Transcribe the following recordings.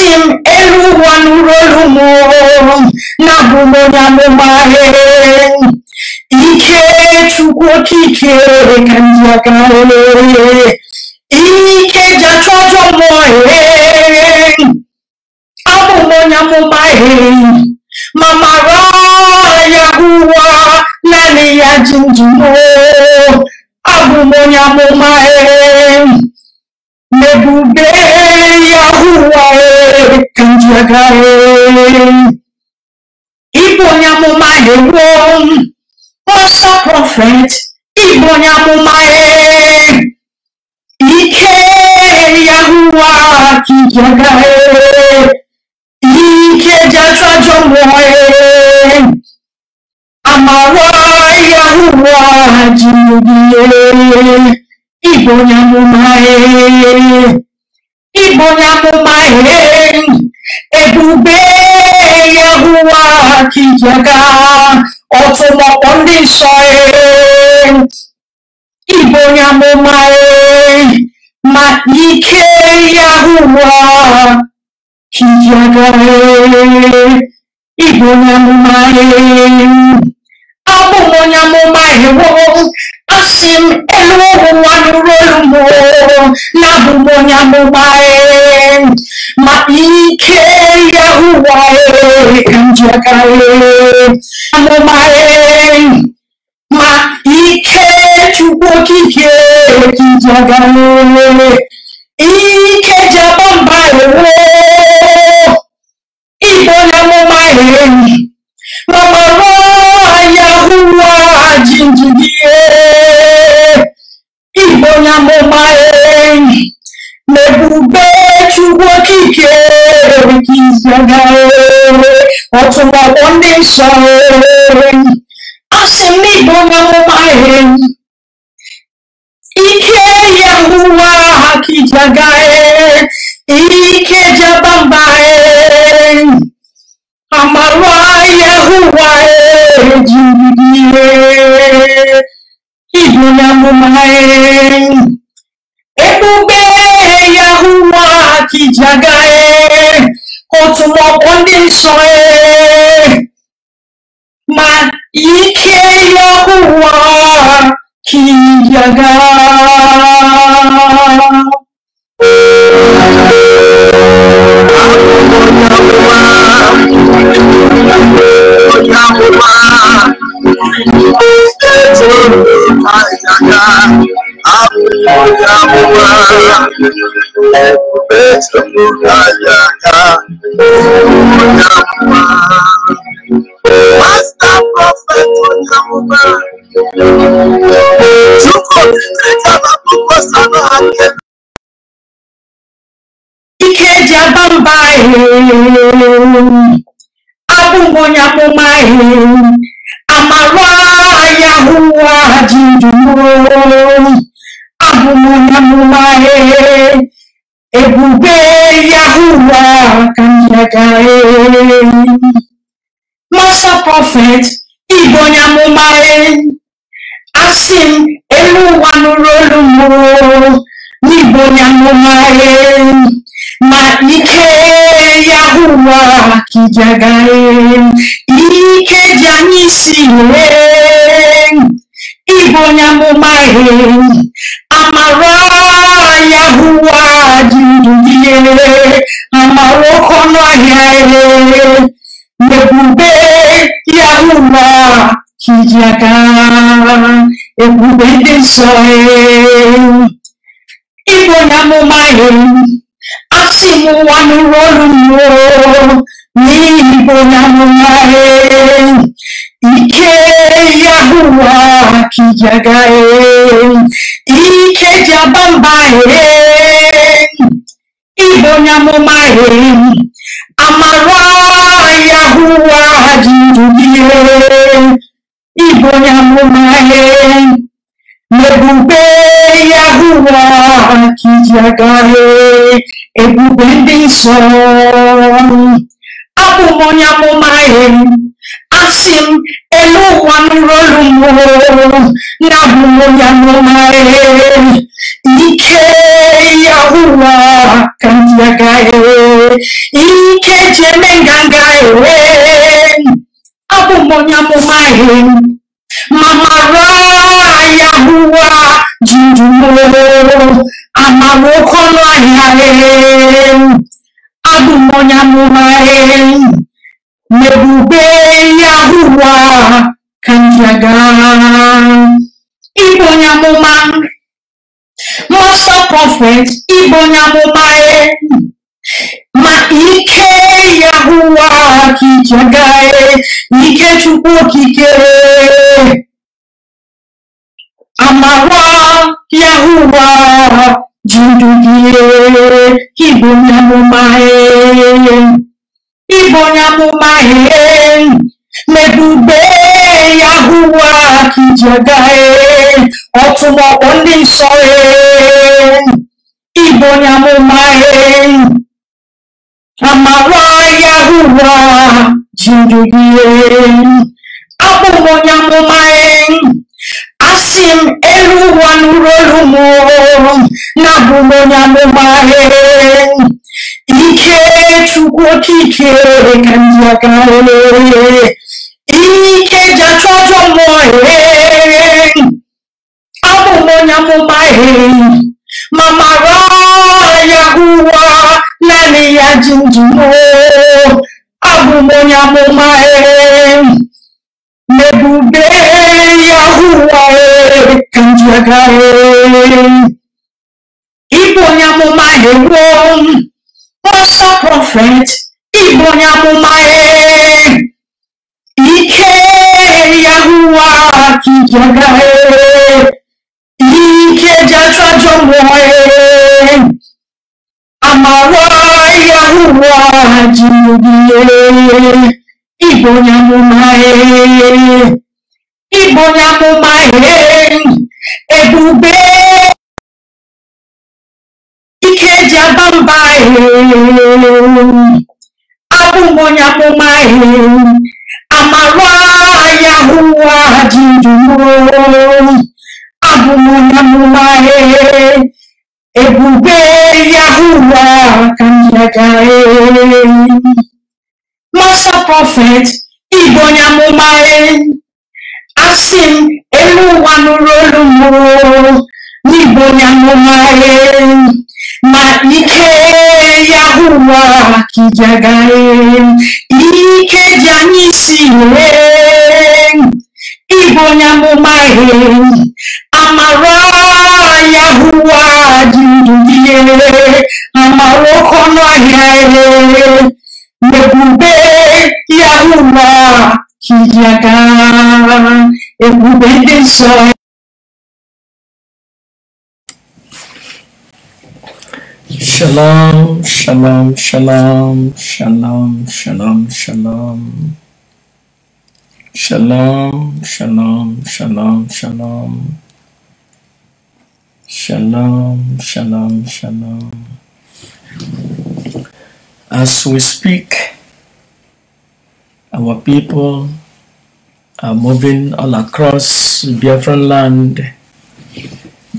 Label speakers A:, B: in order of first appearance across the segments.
A: Esim elu wanu rolu mo na bumo ya mo mahe Ike chukwu okike ka ndị aka Ike jacha ọjọ mo he Abụmo ya mo mahe Mama ra ya huwa nani ya jinjumo Abụmo ya mo में डूबे या हुआ जगह Ibo ni a mo máa lè wó wọ́n sọ prophet Ibo ni a mo máa ike yahuwa kì í jọga ike jẹjọjọ wọ àmàwọ yahuwa Igbo onye amụma Igbo onye amụma ebube Yehowa ka ije ọtụmọkpọ ndị nsọ Igbo onye amụma ma ike Yehowa ka ije Igbo onye amụma abụ onye amụma asim eluogu nwanurolumo nabụ m onye amụma ma ike ya ụwa ka m ji aka amụma ma ike chukwu okike ka ike Mwenye, otuma wande Ike Yahuwa hakijagae, Ike jabambae, Amarwa Yahuwa e jibidie, Ibona Yahuwa otu maọbụ ndị nsọree ma ike ya ụwa kiyaga Thank you. Master Ike jaba mba abụghị onye amụma amara ya hụwa ji Abumunamumare, Ebube Yahuwah Kanyagae. Master Prophet Ibonyamumare, Asim Eluwanurolumo, Ibonyamumare, Ma Ike Yahua Kijagae, Ike Janisiwe. Ibo onye amụma ihe amara ya hụwa dị ndụ ihe amara oke ọnụ ahịa ihe ebube ya hụwa iji aka ebube ndị nsọ ịbụ onye amụma ihe asị m ụwa nụrụ olu m Ike Yahuwa kijagae, Ike jabambae, Ibonyamumae, Amara Yahuwa jidulie, Ibonyamumae, Nebube Yahuwa kijagae, Ebube ndị nsọ, Abụ m onye amụma Asim elu wanurolu mo na mumoya numae ike yahuwa kantiagae ike jemengangae abumoya mumae mamara yahuwa jindumo amarokono ayae abumoya mumae Nebube Yahuwa kanjaga Igbo nyamụma Mọsọ conference Igbo nyamụma ma ike Yahuwa kijaga ike Chukwu okike amawa Yahuwa ji ndu gị Igbo nyamụma Ibo onye amụma ee n'ebube ya hụwa ka ije gaa ee ọtụmọkpọ ndị nsọ ee Ibo abụ m onye amụma ee asị elu ụwa nụrụ olu m na abụ m ike chukwu oke ike ka ndị aka ike ji achụ ọjọ mmụọ abụ onye amụma ma mara ya ụwa naanị ya ji ndụ abụ m onye amụma n'ebube ya ụwa ka ndị aka ịbụ onye amụma eruo ọsọ prophet ịbụ onye amụma ike yahuwa kijoga e. ike jajajo mmụọ amawa e. yahuwa jirugiye ịbụ onye amụma ịbụ onye amụma e. ebube abụ m onye akpụma ihe amara ya abụ m onye amụma ihe ebube ya hụwa ka njaga Master Prophet Igbo onye amụma asị m elu ụwa nụrụ olu m ike ya ụwa kijagare ike ji anyị si wee amara ya ụwa ji ndụ ihe amara nebube ọnụ ya ụwa kijagara ebube ndị nsọ
B: Shalom, shalom, shalom, shalom, shalom, shalom. Shalom, shalom, shalom, shalom. Shalom, shalom, shalom. As we speak, our people are moving all across Biafran land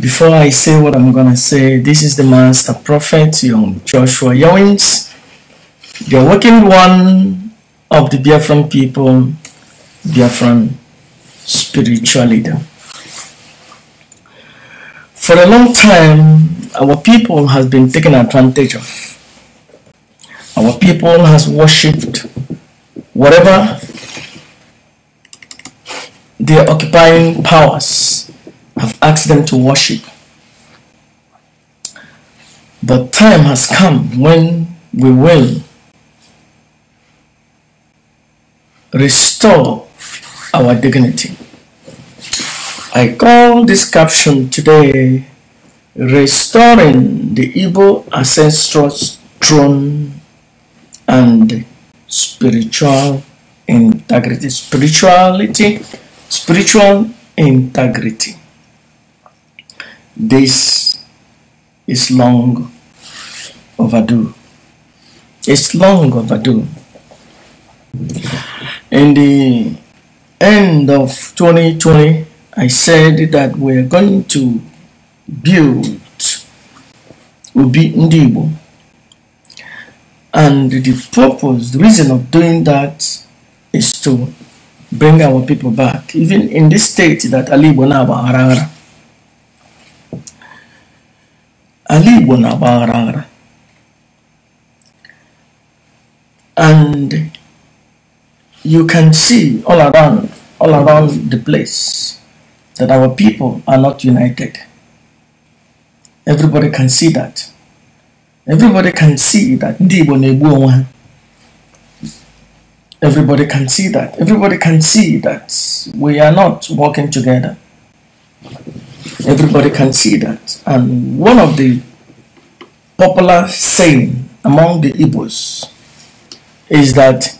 B: before I say what I'm gonna say, this is the Master Prophet Young Joshua Owens, the awakened one of the Biafran people, Biafran spiritual leader. For a long time, our people has been taken advantage of. Our people has worshipped whatever they are occupying powers I've asked them to worship. The time has come when we will restore our dignity. I call this caption today Restoring the Igbo Ancestors Throne and Spiritual Integrity. Spirituality, spiritual integrity. This is long overdue. It's long overdue. In the end of 2020, I said that we're going to build Ubi Ndibo. And the purpose, the reason of doing that is to bring our people back, even in this state that Ali Bonaba Arara Ali na And you can see all around, all around the place that our people are not united. Everybody can see that. Everybody can see that Everybody can see that. Everybody can see that we are not working together.
A: Everybody can
B: see that. And one of the popular saying among the Igbos is that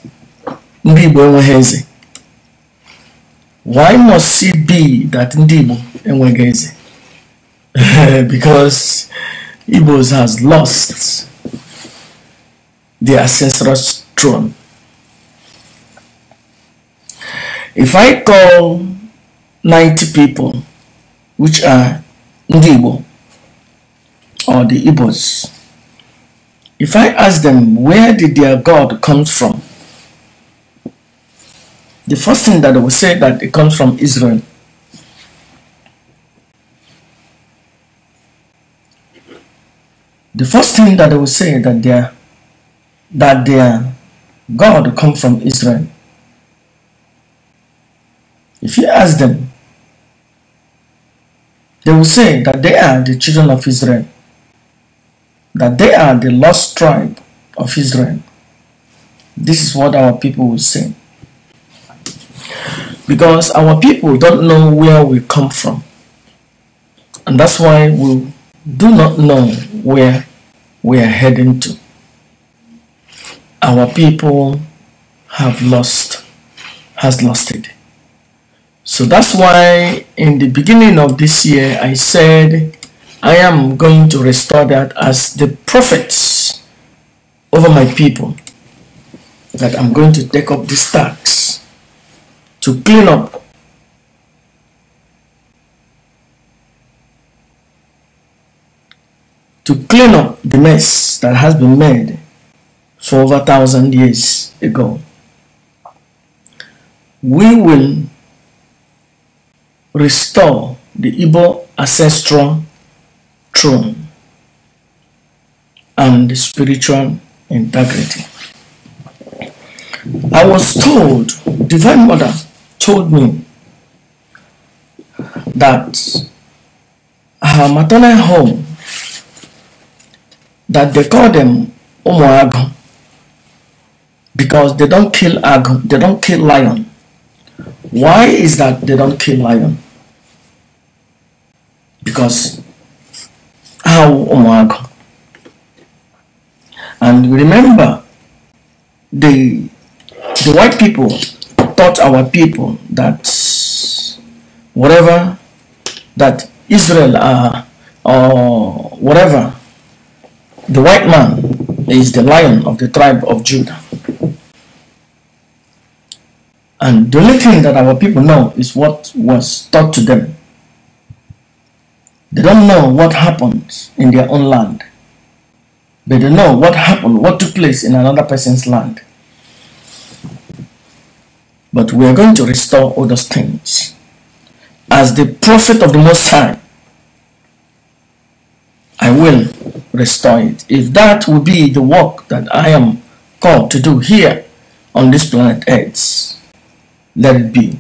B: ndị Igbo enweghị Why must it be that ndị Igbo enweghị because Igbos has lost the ancestral throne. If I call 90 people which are Ndigbo or the Igbos, if I ask them where did their God come from, the first thing that they will say that it comes from Israel. The first thing that they will say that their that their God come from Israel. If you ask them they will say that they are the children of Israel, that they are the lost tribe of Israel. This is what our people will say. Because our people don't know where we come from. And that's why we do not know where we are heading to. Our people have lost, has lost it so that's why in the beginning of this year I said I am going to restore that as the prophets over my people that I'm going to take up this tax to clean up to clean up the mess that has been made for over a thousand years ago. We will restore the Igbo ancestral throne and spiritual integrity. I was told, Divine Mother told me that her maternal home, that they call them Omoago because they don't kill ago, they don't kill lion why is that they don't kill lion? Because how oh God. and remember the the white people taught our people that whatever that Israel are or whatever the white man is the lion of the tribe of Judah and the only thing that our people know is what was taught to them. They don't know what happened in their own land. But they know what happened, what took place in another person's land. But we are going to restore all those things. As the prophet of the Most High, I will restore it. If that will be the work that I am called to do here on this planet Earth, let be.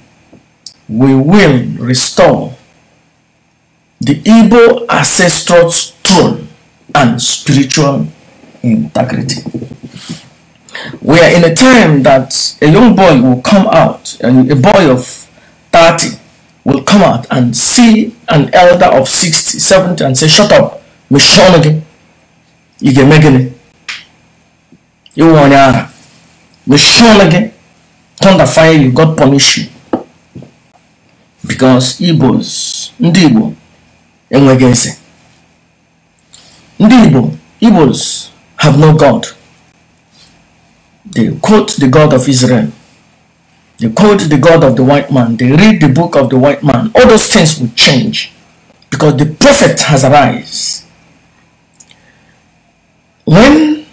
B: We will restore the Igbo ancestor's throne and spiritual integrity. We are in a time that a young boy will come out, and a boy of 30 will come out and see an elder of 60, 70 and say, shut up, Michonne again. You get it. You want to Michonne again thunder fire you, God punish you. Because Igbos, ndị Igbo enweghị Ndị Igbo, Igbos have no God. They quote the God of Israel. They quote the God of the white man. They read the book of the white man. All those things will change because the prophet has arise. When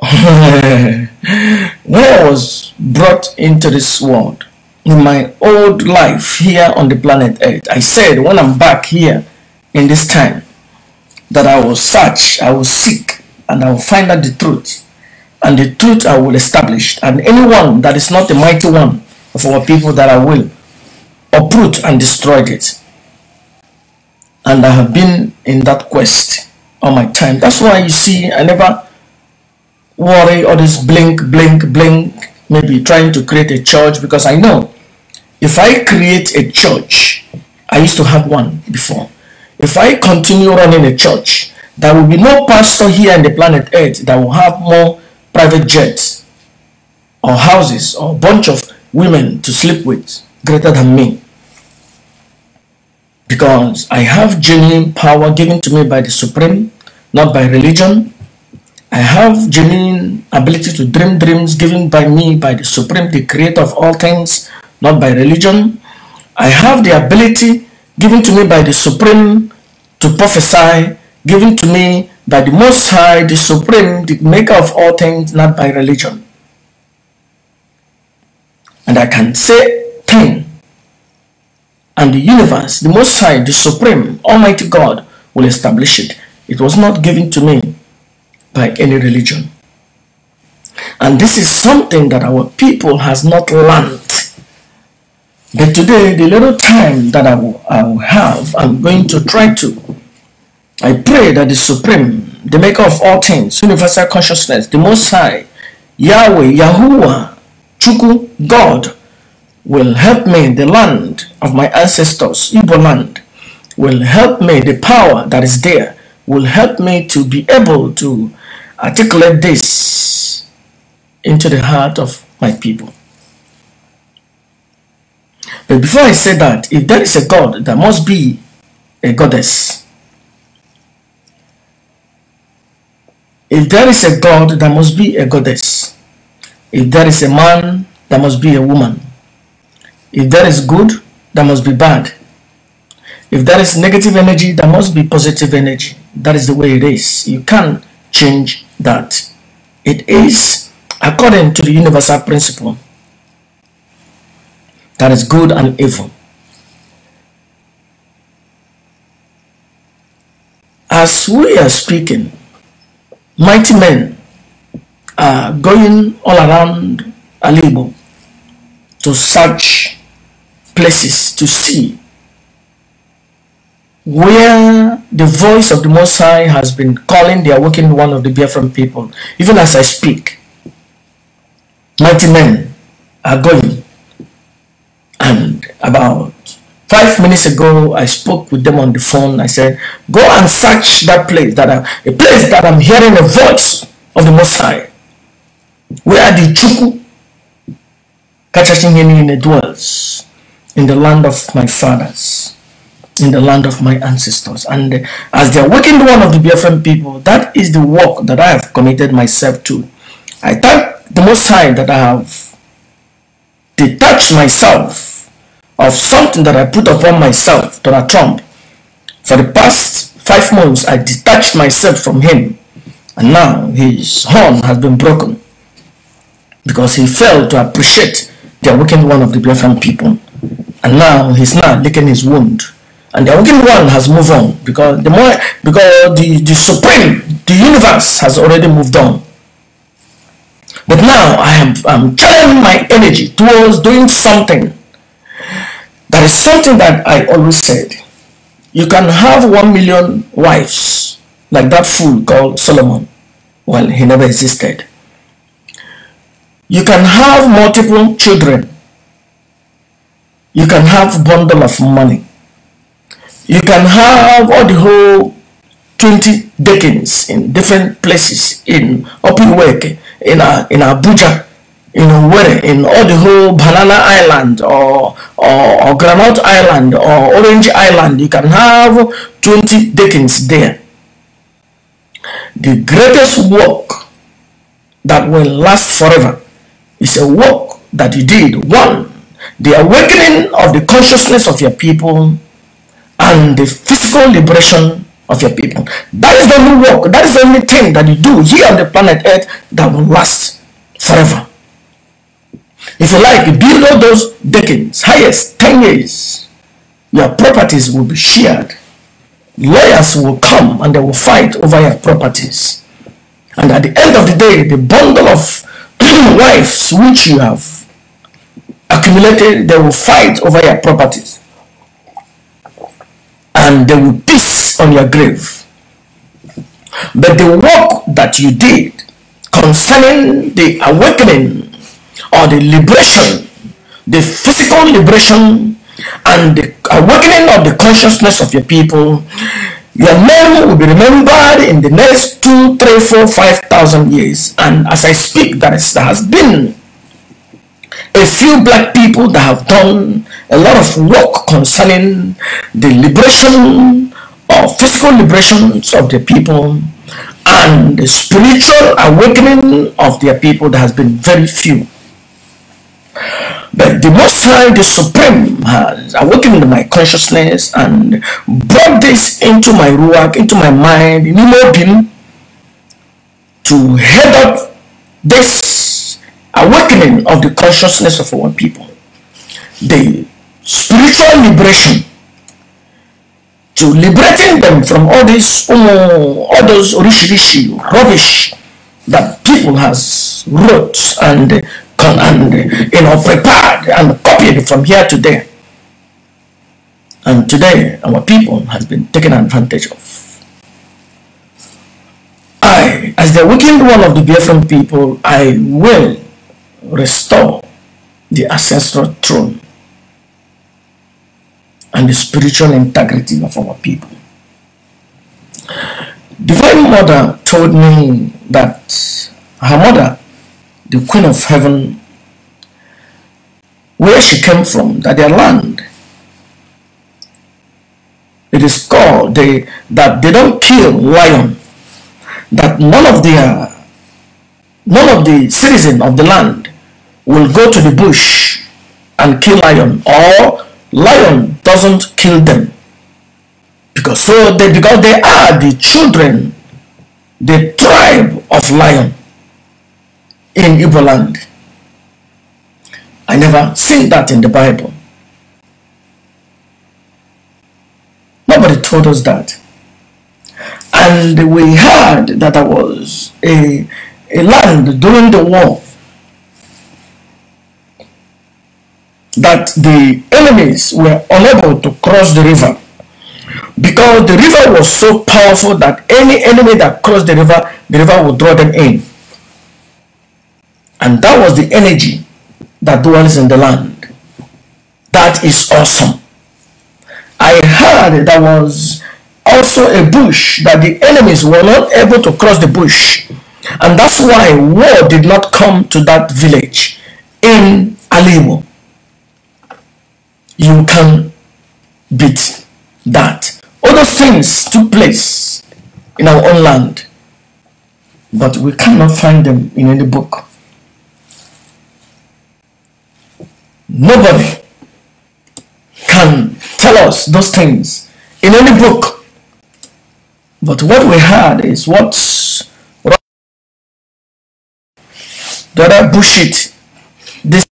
B: was brought into this world in my old life here on the planet Earth. I said when I'm back here in this time that I will search, I will seek, and I will find out the truth. And the truth I will establish. And anyone that is not the mighty one of our people that I will uproot and destroy it. And I have been in that quest all my time. That's why you see I never worry or this blink, blink, blink, maybe trying to create a church because I know if I create a church, I used to have one before. If I continue running a church, there will be no pastor here on the planet Earth that will have more private jets or houses or bunch of women to sleep with greater than me. Because I have genuine power given to me by the Supreme, not by religion, I have genuine ability to dream dreams given by me by the Supreme, the Creator of all things, not by religion. I have the ability given to me by the Supreme to prophesy, given to me by the Most High, the Supreme, the Maker of all things, not by religion. And I can say thing. And the universe, the Most High, the Supreme, Almighty God will establish it. It was not given to me by any religion. And this is something that our people has not learned. But today, the little time that I will, I will have, I'm going to try to. I pray that the Supreme, the maker of all things, universal consciousness, the Most High, Yahweh, Yahuwah, Chuku, God, will help me, the land of my ancestors, Igbo land, will help me, the power that is there, will help me to be able to articulate this into the heart of my people. But before I say that, if there is a God, there must be a goddess. If there is a God, there must be a goddess. If there is a man, there must be a woman. If there is good, there must be bad. If there is negative energy, there must be positive energy. That is the way it is. You can't change that it is according to the universal principle that is good and evil. As we are speaking, mighty men are going all around Alibo to search places to see where the voice of the Most High has been calling the awakened one of the Biafran people, even as I speak. Mighty men are going. And about five minutes ago, I spoke with them on the phone. I said, go and search that place, that a place that I'm hearing the voice of the Most High, where the Chuku Kachashin dwells in the land of my fathers in the land of my ancestors. And uh, as the awakened one of the BFM people, that is the work that I have committed myself to. I thank the Most High that I have detached myself of something that I put upon myself, Donald Trump. For the past five months, I detached myself from him. And now his horn has been broken because he failed to appreciate the awakened one of the BFM people. And now he's now licking his wound and the wicked one has moved on because the more because the, the supreme the universe has already moved on but now i am i'm channeling my energy towards doing something that is something that i always said you can have one million wives like that fool called solomon well he never existed you can have multiple children you can have bundle of money you can have all the whole 20 deacons in different places in open work in, uh, in Abuja, in where in all the whole Banana Island or, or, or Granite Island or Orange Island. You can have 20 deacons there. The greatest work that will last forever is a work that you did. One, the awakening of the consciousness of your people and the physical liberation of your people. That is the only work, that is the only thing that you do here on the planet Earth that will last forever. If you like, below those decades, highest 10 years, your properties will be shared. Lawyers will come and they will fight over your properties. And at the end of the day, the bundle of wives which you have accumulated, they will fight over your properties and they will piss on your grave. But the work that you did concerning the awakening or the liberation, the physical liberation and the awakening of the consciousness of your people, your name will be remembered in the next two, three, four, five thousand years. And as I speak, that, is, that has been a few black people that have done a lot of work concerning the liberation or physical liberations of the people and the spiritual awakening of their people that has been very few. But the Most High, the Supreme, has awakened my consciousness and brought this into my ruach, into my mind, in Imobim, to head up this awakening of the consciousness of our people, the spiritual liberation to liberating them from all this um, all those rishi rubbish that people has wrote and and you know prepared and copied from here to there and today our people has been taken advantage of I as the awakened one of the Biafran people I will restore the ancestral throne and the spiritual integrity of our people. Divine Mother told me that her mother, the Queen of Heaven, where she came from, that their land, it is called they, that they don't kill lion, that none of their none of the citizen of the land will go to the bush and kill lion or lion doesn't kill them because so they because they are the children the tribe of lion in Igbo land I never see that in the Bible nobody told us that and we heard that there was a, a land during the war that the enemies were unable to cross the river because the river was so powerful that any enemy that crossed the river, the river would draw them in. And that was the energy that dwells in the land. That is awesome. I heard there was also a bush that the enemies were not able to cross the bush. And that's why war did not come to that village in Alimo you can beat that. All those things took place in our own land, but we cannot find them in any book. Nobody can tell us those things in any book. But what we had is what
C: the other bullshit this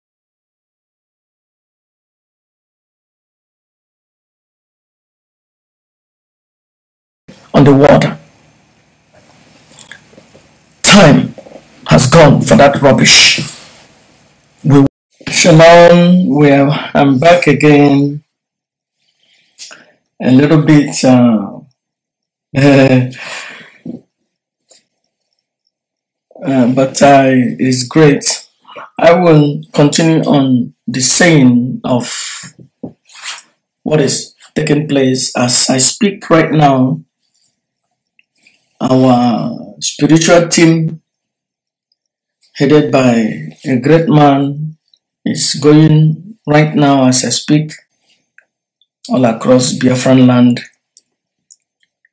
C: Underwater, the water.
B: Time has gone for that rubbish. We Shalom, we are, I'm back again. A little bit uh, uh, but I it's great. I will continue on the saying of what is taking place as I speak right now our spiritual team, headed by a great man, is going right now as I speak all across Biafran land,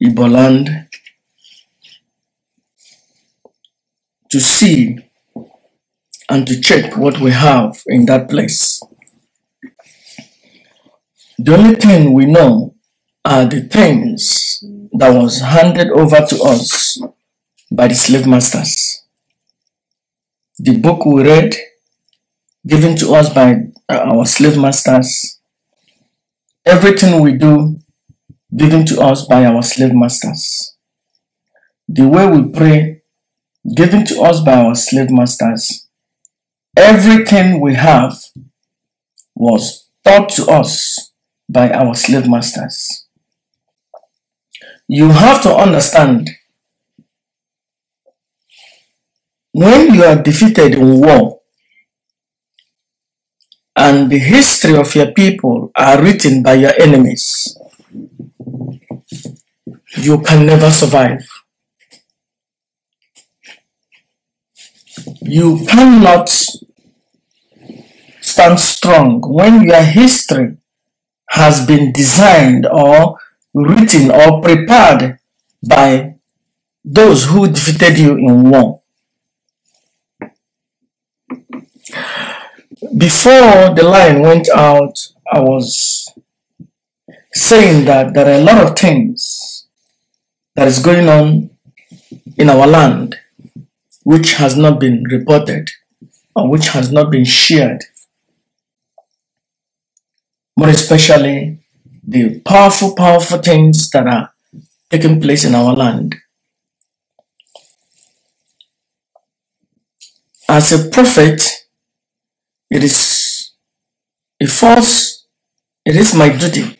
B: Ibo land, to see and to check what we have in that place. The only thing we know are the things that was handed over to us by the slave masters. The book we read, given to us by uh, our slave masters, everything we do, given to us by our slave masters. The way we pray, given to us by our slave masters. Everything we have was taught to us by our slave masters you have to understand when you are defeated in war and the history of your people are written by your enemies, you can never survive. You cannot stand strong when your history has been designed or written or prepared by those who defeated you in war. Before the line went out, I was saying that there are a lot of things that is going on in our land which has not been reported or which has not been shared, more especially the powerful, powerful things that are taking place in our land. As a prophet, it is a false, it is my duty.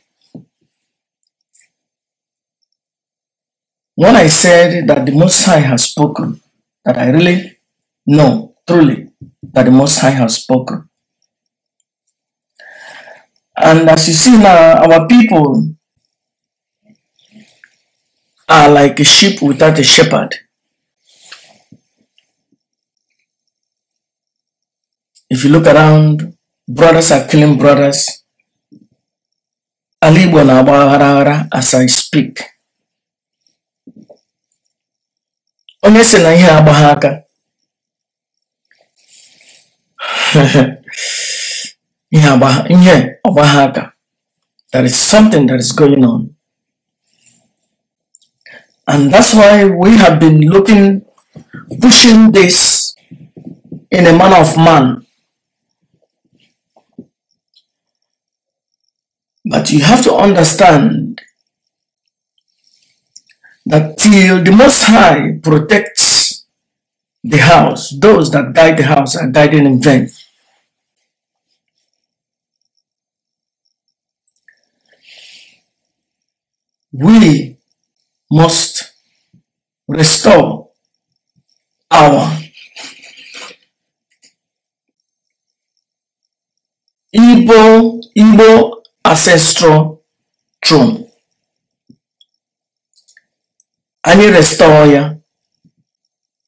B: When I said that the Most High has spoken, that I really know, truly, that the Most High has spoken, and as you see now, our people are like a sheep without a shepherd. If you look around, brothers are killing brothers. na as I speak. Onye na ihe aka. there is something that is going on and that's why we have been looking pushing this in a manner of man but you have to understand that till the most high protects the house those that guide the house are guided in vain
C: we must restore our
B: Igbo, Igbo ancestral throne. you restore ya,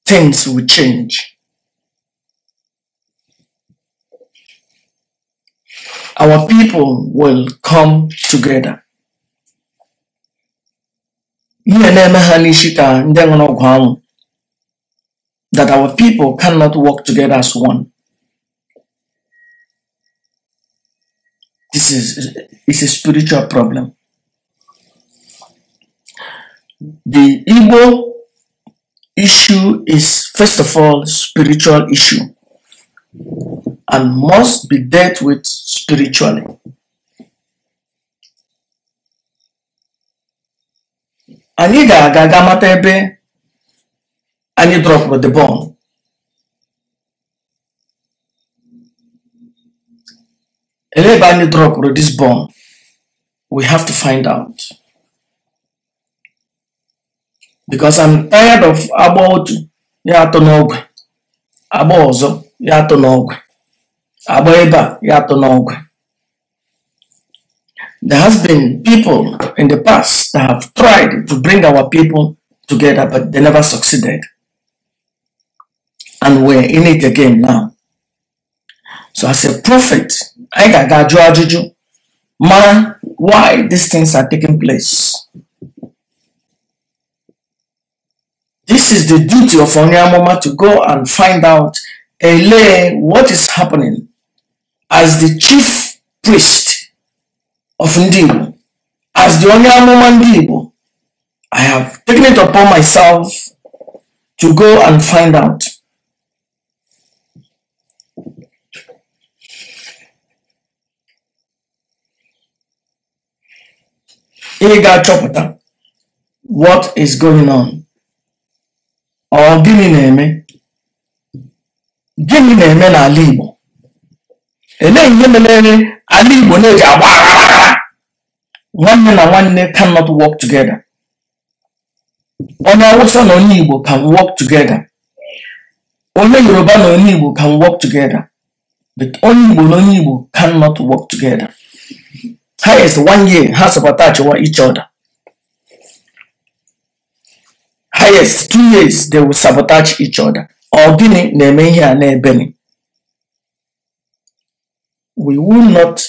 B: things will change. Our people will come together ihe na-eme ha n'isi ka ndị ọgwụ anwụ that our people cannot work together as one this is it's a spiritual problem the Igbo issue is first of all spiritual issue and must be dealt with spiritually anyị ga-aga ga mata ebe anyị drọpụrụ the bomb ele ebe anyị drọpụrụ this bomb we have to find out because I'm tired of agba otu ya atọ n'ọgwe agba ọzọ ya atọ n'ọgwe agba ebe a ya atọ n'ọgwe There has been people in the past that have tried to bring our people together, but they never succeeded. And we're in it again now. So as a prophet, I got Juju, man, why these things are taking place. This is the duty of Onyamoma to go and find out, elay, what is happening as the chief priest of Igbo: As the only Ndị Igbo, I have taken it upon myself to go and find out. Iga achọpụta what is going on? Ọ gịnị na-eme? Gịnị na-eme n'ala Igbo? Elee ihe mere ala Igbo na-eji agba aghara One man and one nwanne cannot work together. Only Hausa and onye Igbo can work together. Only Yoruba and onye Igbo can work together. But onye Igbo and onye Igbo cannot work together. Highest is one year ha supportachiwa each other. highest two years they will sabotage each other or gini na-eme ebeni we will not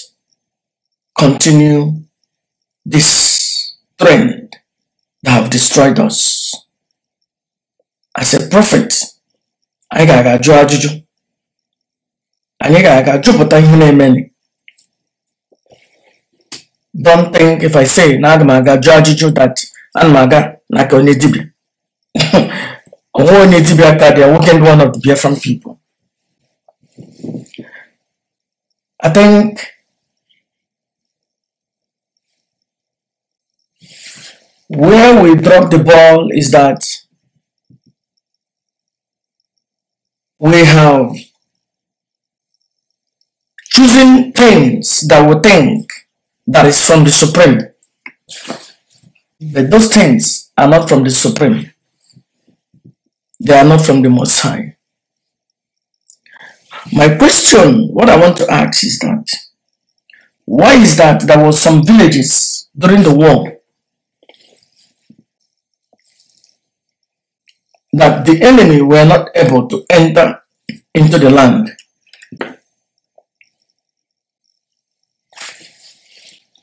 B: continue this trend that have destroyed us. As a prophet, anyị ga-aga jụọ ajụjụ. Anyị ga-aga jụpụta ihe na Don't think if I say na aga m aga ajụjụ that ana m aga n'aka onye dibịa. Ọnwa onye dibịa ka dị awoken one of the Biafran people. I think Where we drop the ball is that we have choosing things that we think that is from the Supreme. But those things are not from the Supreme. They are not from the Most High. My question, what I want to ask is that, why is that there were some villages during the war that the enemy were not able to enter into the land.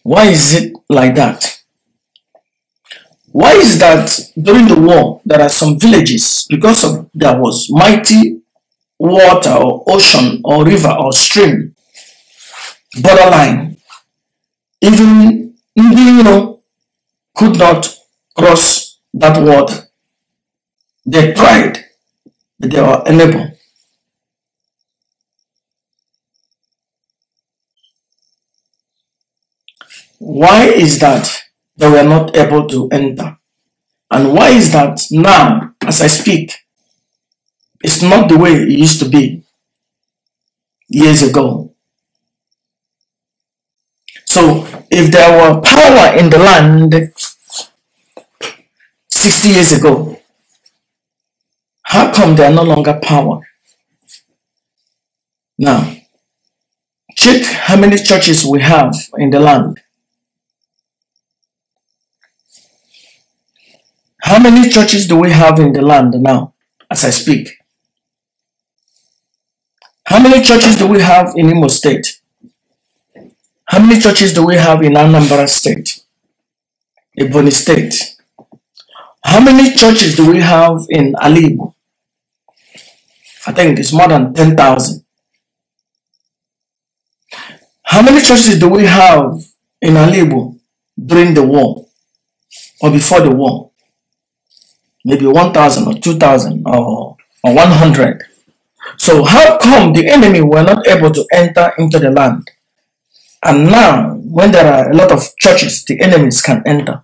B: Why is it like that? Why is that during the war there are some villages because of there was mighty water or ocean or river or stream borderline even know, could
C: not cross that water they tried, but they were unable.
B: Why is that they were not able to enter? And why is that now, as I speak, it's not the way it used to be years ago? So, if there were power in the land 60 years ago, how come they are no longer power? Now, check how many churches we have in the land. How many churches do we have in the land now as I speak? How many churches do we have in Imo State? How many churches do we have in Anambra State? Ebony State? How many churches do we have in Alibu? I think it's more than 10,000. How many churches do we have in Alibu during the war or before the war? Maybe 1,000 or 2,000 or, or 100. So how come the enemy were not able to enter into the land? And now, when there are a lot of churches, the enemies can enter.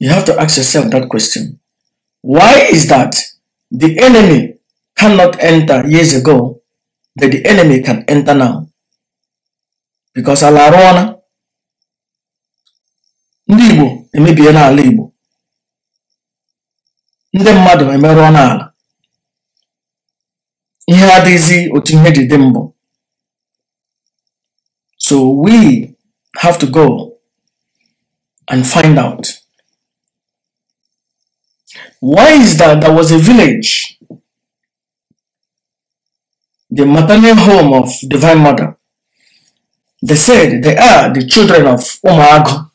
B: You have to ask yourself that question. Why is that? The enemy cannot enter years ago, but the enemy can enter now. Because ala arụ ọna Libo, Igbo emebie n'ala Igbo ndị mmadụ emerụọ n'ala ihe adịghịzi otu ihe ji dị mbụ so we have to go
C: and find out
B: why is that there was a village, the maternal home of Divine Mother? They said they are the children of Umago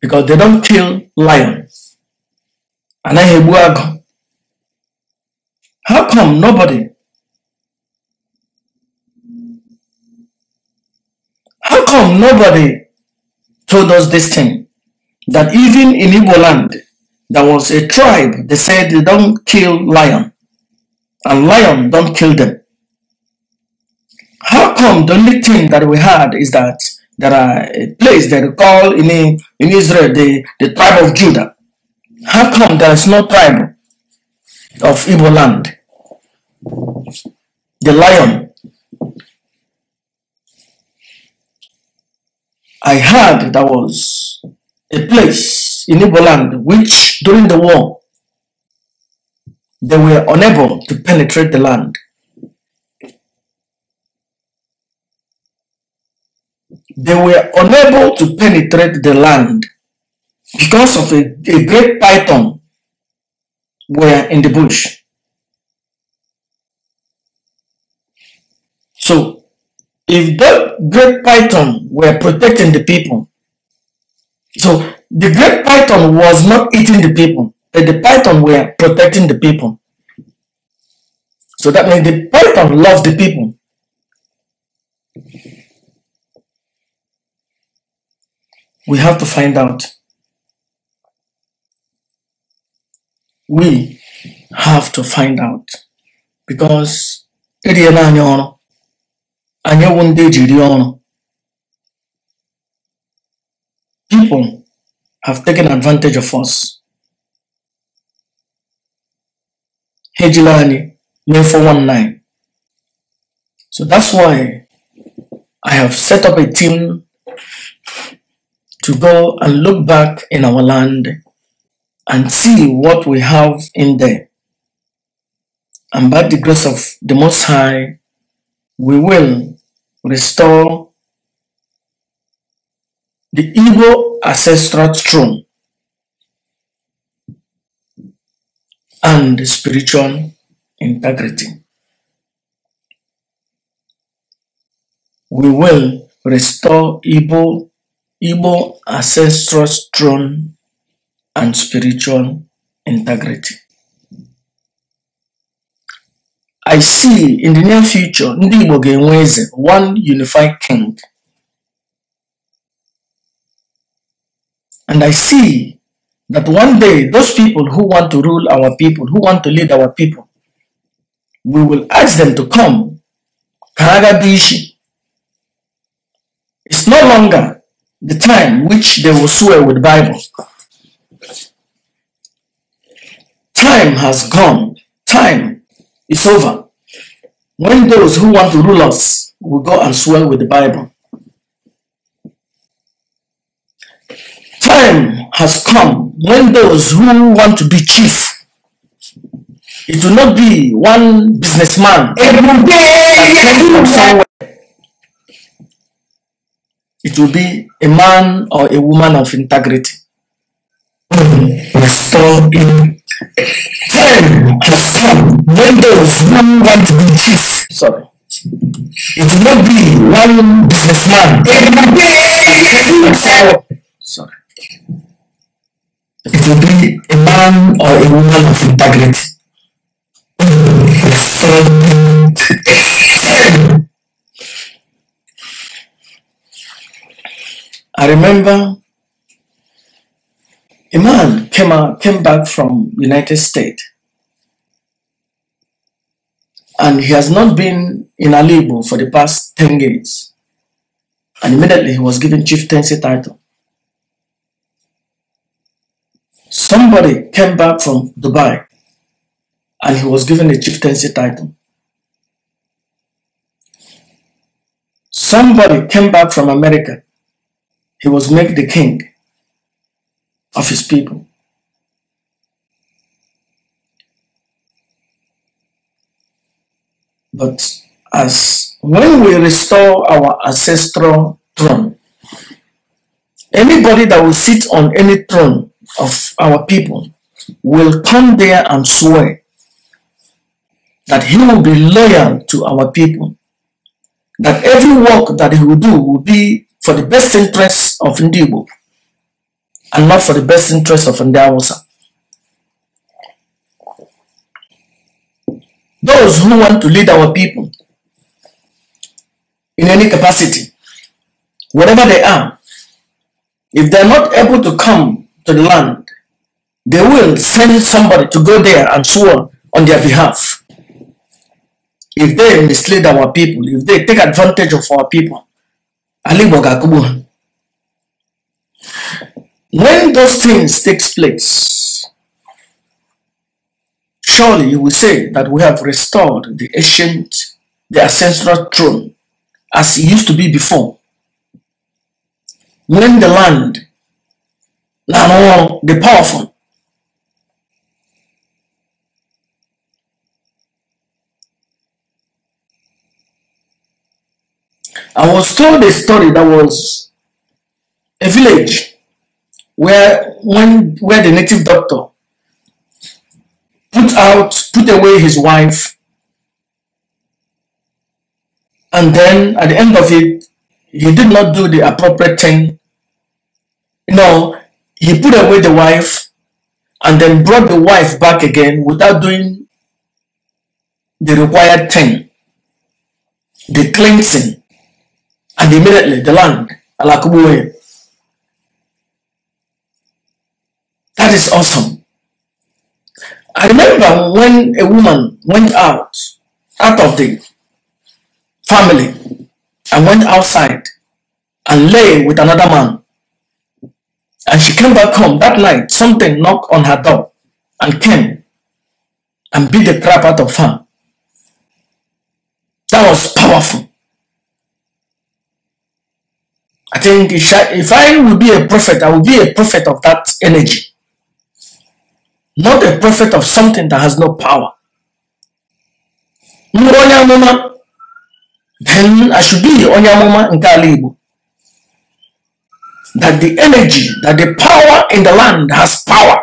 B: because they don't kill lions. And I How come nobody? How come nobody told us this thing? That even in Igbo land, there was a tribe they said they don't kill lion and lion don't kill them how come the only thing that we had is that there are a place that we call in, in Israel the, the tribe of Judah. How come there is no tribe of evil land? The lion. I heard there was a place in Igbo land, which during the war, they were unable to penetrate the land. They were unable to penetrate the land because of a, a great python were in the bush. So, if that great python were protecting the people, so the great python was not eating the people, but the python were protecting the people. So that means the python loved the people. We have to find out. We have to find out because eriela anyị ọrụ anyị people have taken advantage of us. Hejilani, May 419. So that's why I have set up a team to go and look back in our land and see what we have in there. And by the grace of the Most High, we will restore the evil ancestral throne and spiritual integrity. We will restore Igbo, Igbo ancestral throne and spiritual integrity. I see in the near future, Ndị Igbo one unified king And I see that one day those people who want to rule our people, who want to lead our people, we will ask them to come. Karagadishi. It's no longer the time which they will swear with Bible. Time has gone. Time is over. When those who want to rule us will go and swear with the Bible. time has come when those who want to be chief it will not be one businessman it will be a man or a woman of integrity so in time has come when those who want to be chief sorry it will not be one businessman every
C: day Sorry. It will be a man or a woman of integrity.
B: I remember a man came, out, came back from United States and he has not been in Alibo for the past 10 years. And immediately he was given chieftaincy title. Somebody came back from Dubai and he was given a chieftaincy title. Somebody came back from America. He was made the king of his people. But as when we restore our ancestral throne, anybody that will sit on any throne of our people will come there and swear that he will be loyal to our people, that every work that he will do will be for the best interests of Ndibo and not for the best interests of Ndawasa. Those who want to lead our people in any capacity, whatever they are, if they're not able to come to the land, they will send somebody to go there and swear on their behalf. If they mislead our people, if they take advantage of our people, when those things takes place, surely you will say that we have restored the ancient, the ancestral throne as it used to be before. When the land n'ala ọrụ the powerful. I was told a story that was a village where when where the native doctor put out put away his wife and then at the end of it he did not do the appropriate thing you know he put away the wife and then brought the wife back again without doing the required thing the cleansing and immediately the land alakubuwe that is awesome i remember when a woman went out out of the family and went outside and lay with another man and she came back home that night. Something knocked on her door and came and beat the crap out of her. That was powerful. I think if I would be a prophet, I would be a prophet of that energy. Not a prophet of something that has no power. Then I should be Onyamoma Nkalibu that the energy, that the power in the land has power.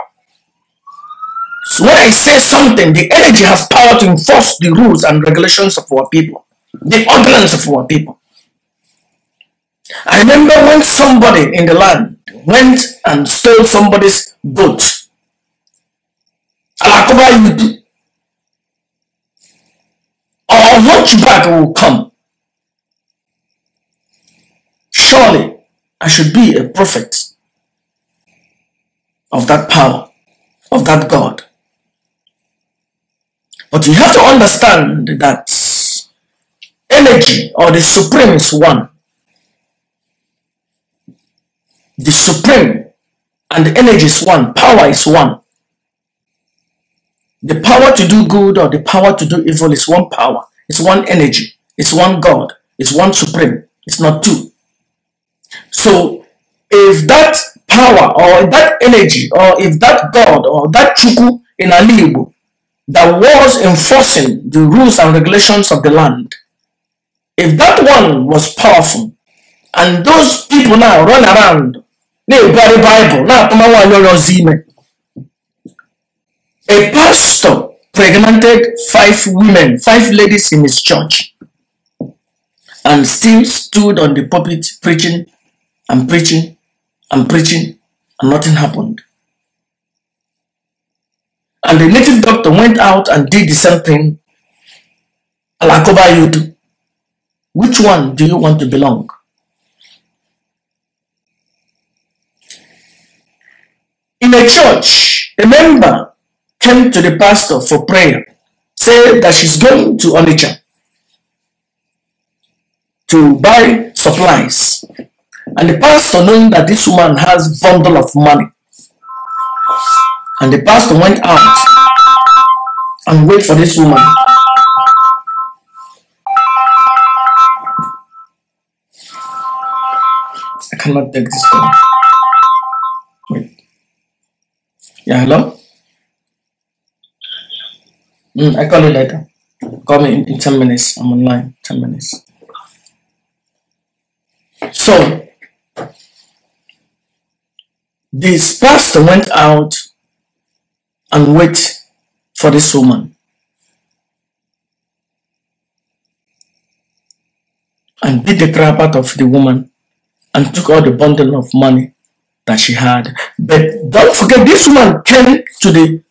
B: So when I say something, the energy has power to enforce the rules and regulations of our people, the ordinance of our people. I remember when somebody in the land went and stole somebody's boat. Alakoba you do. Or hunchback will come. Surely I should be a prophet of that power, of that God. But you have to understand that energy or the supreme is one. The supreme and the energy is one, power is one. The power to do good or the power to do evil is one power, it's one energy, it's one God, it's one supreme, it's not two. So if that power or that energy or if that God or that Chuku in Alibu that was enforcing the rules and regulations of the land, if that one was powerful and those people now run around, they bury Bible, now a pastor pregnanted five women, five ladies in his church and still stood on the pulpit preaching I'm preaching, I'm preaching, and nothing happened. And the native doctor went out and did the same thing. Alakoba do. Which one do you want to belong? In a church, a member came to the pastor for prayer, said that she's going to Onitsha to buy supplies. And the pastor, knowing that this woman has bundle of money, and the pastor went out and wait for this woman. I cannot take this call. Wait. Yeah, hello? Mm, I call you later. Call me in, in 10 minutes. I'm online. 10 minutes. So, this pastor went out and wait for this woman. And beat the crap out of the woman and took all the bundle of money that she had. But don't forget, this woman came to the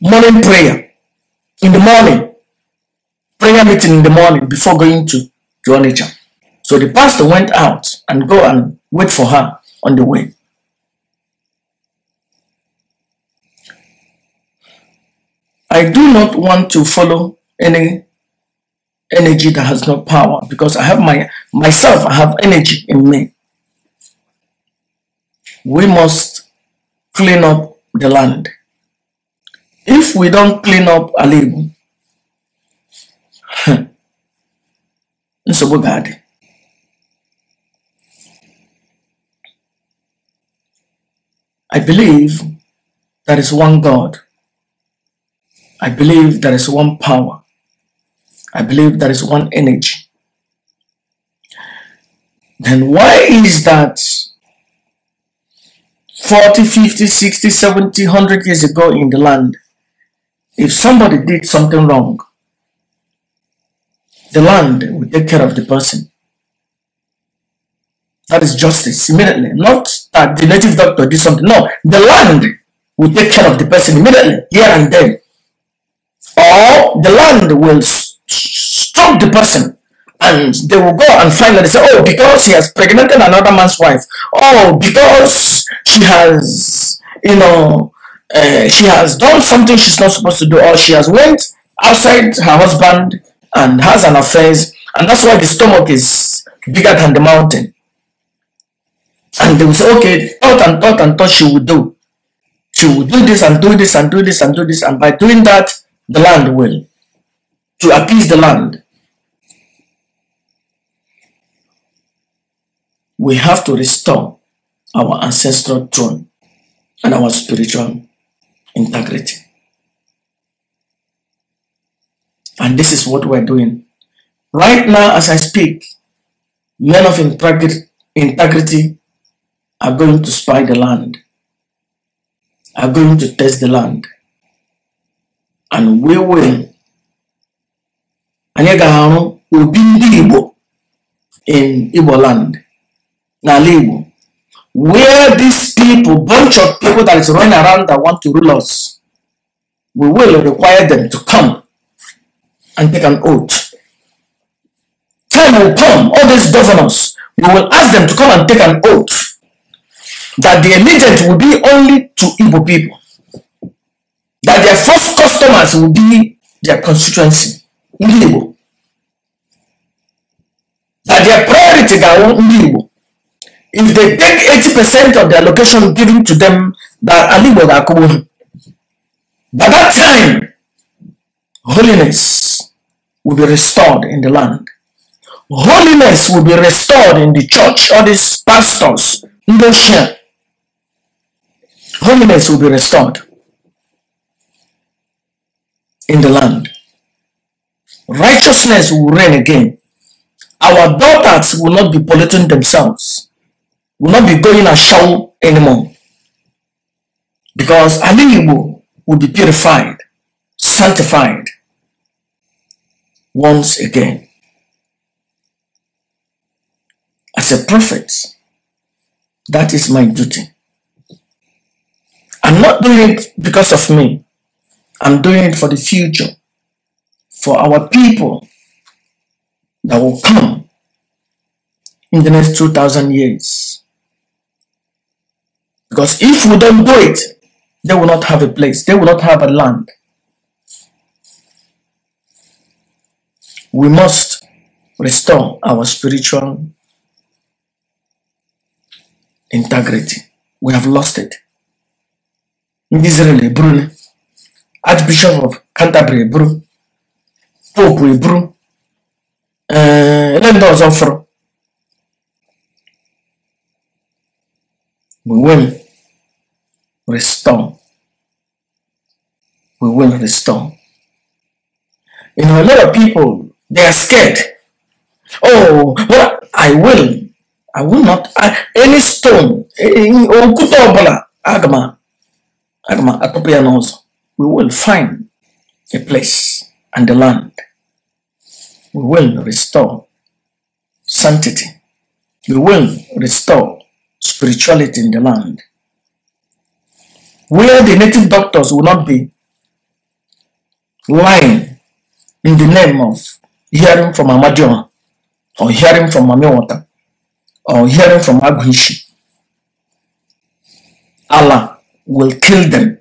B: morning prayer in the morning, prayer meeting in the morning before going to Joanna so the pastor went out and go and wait for her on the way. I do not want to follow any energy that has no power because I have my myself, I have energy in me. We must clean up the land. If we don't clean up a nsogbu ga-adị I believe there is one God. I believe there is one power. I believe there is one energy. Then why is that 40, 50, 60, 70, 100 years ago in the land, if somebody did something wrong, the land will take care of the person. That is justice immediately, not uh, the native doctor did something. No, the land will take care of the person immediately, here and then. Or the land will stop the person and they will go and finally say, oh, because he has pregnanted another man's wife. Oh, because she has, you know, uh, she has done something she's not supposed to do or she has went outside her husband and has an affair and that's why the stomach is bigger than the mountain and they will say, okay, thought and thought and thought she will do. She will do this and do this and do this and do this. And by doing that, the land will. To appease the land. We have to restore our ancestral throne and our spiritual integrity. And this is what we're doing. Right now, as I speak, men of integrity are going to spy the land, are going to test the land, and we will. you ga be obi ndị Igbo in Igbo land, Now, Igbo, where these people, bunch of people that is running around that want to rule us, we will require them to come and take an oath. Time will come, all these governors, we will ask them to come and take an oath that the agent will be only to Igbo people. That their first customers will be their constituency, ndị Igbo. That their priority ga-awụ ndị Igbo. If they take 80% of the allocation given to them, that Ali Igbo ga-akụgbu By that time, holiness will be restored in the land. Holiness will be restored in the church, all these pastors, ndị holiness will be restored in the land. Righteousness will reign again. Our daughters will not be polluting themselves, will not be going ashore anymore. Because Aliyibu will be purified, sanctified once again. As a prophet, that is my duty I'm not doing it because of me. I'm doing it for the future, for our people that will come in the next 2,000 years. Because if we don't do it, they will not have a place, they will not have a land. We must restore our spiritual integrity. We have lost it. Israel eburu Archbishop of Canterbury bro. Pope eburu ele ndị ọzọ offer. we will restore we will restore you know a lot of people they are scared oh well i will i will not I, any stone okwute ọbụla aga m Agma Akopianos, we will find a place and the land. We will restore sanctity. We will restore spirituality in the land. Where the native doctors will not be lying in the name of hearing from Amadion or hearing from Mamiwata or hearing from Aguishi. Allah will kill them.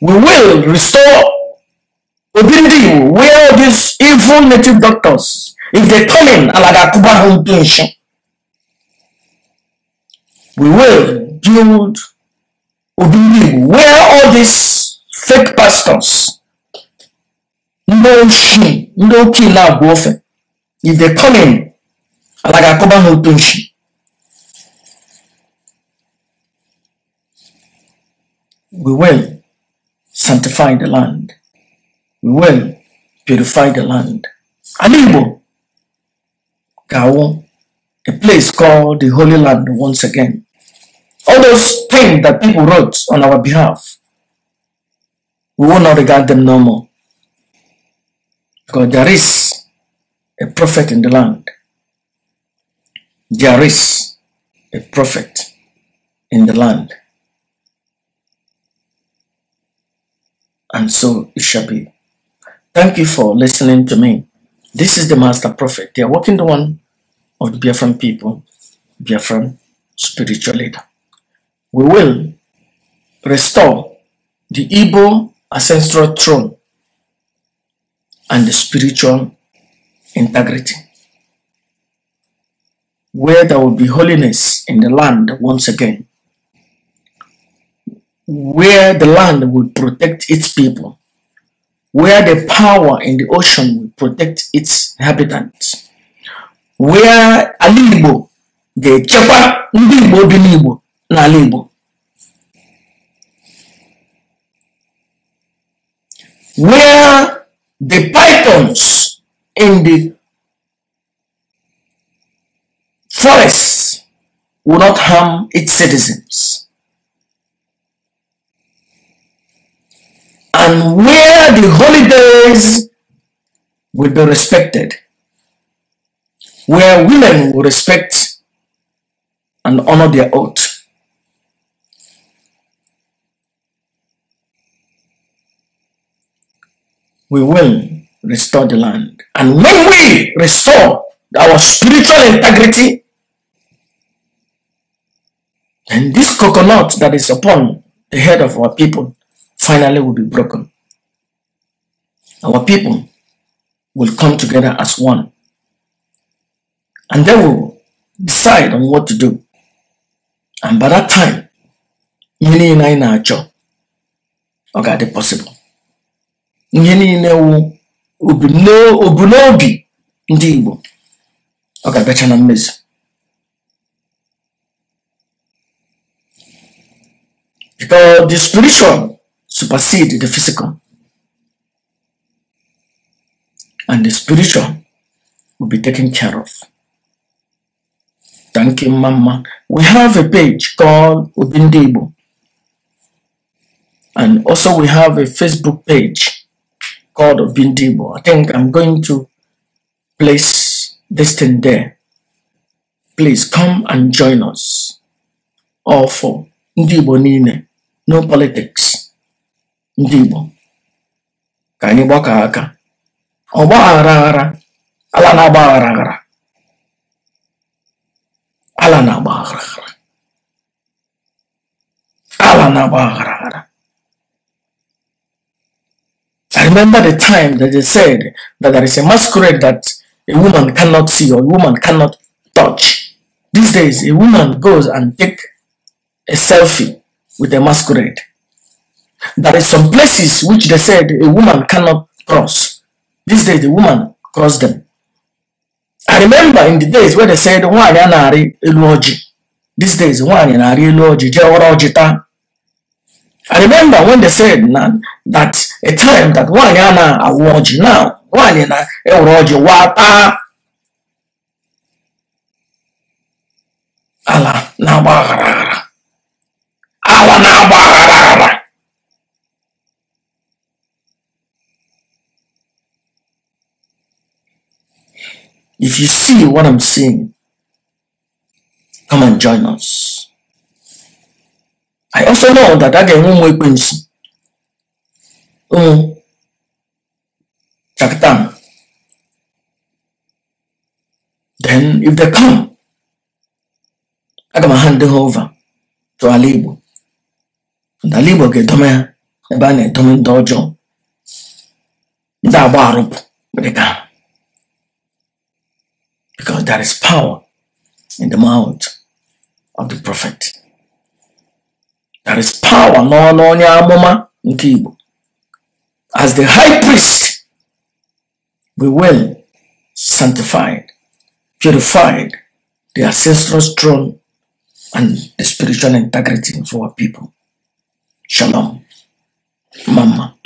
A: We will restore Obindi where these evil native doctors,
B: if they come in, Alagakuba home pension. We will build Obindi where all these fake pastors, no shame, no kill, if they come in, Alagakuba home pension. we will sanctify the land. We will purify the land. Alimbo, Gao, a place called the Holy Land once again. All those things that people wrote on our behalf, we will not regard them no more. Because there is a prophet in the land. There is a prophet in the land. and so it shall be. Thank you for listening to me. This is the Master Prophet, the awakened one of the Biafran people, Biafran spiritual leader. We will restore the Igbo ancestral throne and the spiritual integrity, where there will be holiness in the land once again where the land will protect its people, where the power in the ocean will protect its inhabitants, where ala Igbo ga-echekwa ndị Igbo
C: Where the pythons in the forests will not harm
B: its citizens. and where the holidays will be respected, where women will respect and honor their oath. We will restore the land. And when we restore our spiritual integrity, then this coconut that is upon the head of our people finally will be broken. Our people will come together as one. And they will decide on what to do. And by that time, ihe ina ina na na-achọ ọ ga-adị pọsịbụl ihe niile wụ obu n'obi ndị Igbo ọ na mmezu because the spiritual supersede the physical. And the spiritual will be taken care of. Thank you, Mama. We have a page called Ubindibu. And also we have a Facebook page called Ubindibu. I think I'm going to place this thing there. Please come and join us. All for Ndibo Nine. No politics ndị Igbo ka anyị gbakọ aka ọgba aghara aghara ala
C: na-agba aghara
B: ala na-agba aghara ala na-agba aghara I remember the time that they said that there is a masquerade that a woman cannot see or a woman cannot touch. These days, a woman goes and take a selfie with a masquerade. There is some places which they said a woman cannot cross. These days, the woman crossed them. I remember in the days where they said, why yanaari eluoji. These days, why yanaari eluoji, jeora I remember when they said that a time that why ana awoji now, why na eoroji wata. Allah na If you see what I'm seeing, come and join us. I also know that I can one way quincy.
C: Oh, Chakatan.
B: Then, if they come, I can hand them over to Alibu. And Alibu get them here. Ebe a na-edome ndị ọjọọ, ndị agba arụpụ, ndị ka because there is power in the mouth of the prophet. There is power no, no, no, nke As the high priest, we will sanctified, purified the ancestral throne and the spiritual integrity of our people. Shalom. Mama.